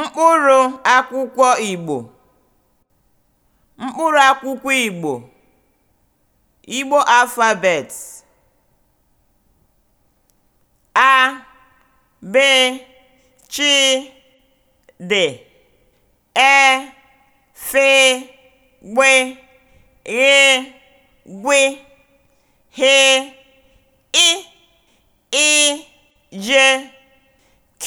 Mkpụrụ akwụkwọ Igbo akwụkwọ Igbo (Igbo alphabet) a, b, ch, d, e, f, gb, gh, gw, h, i, i, j, k.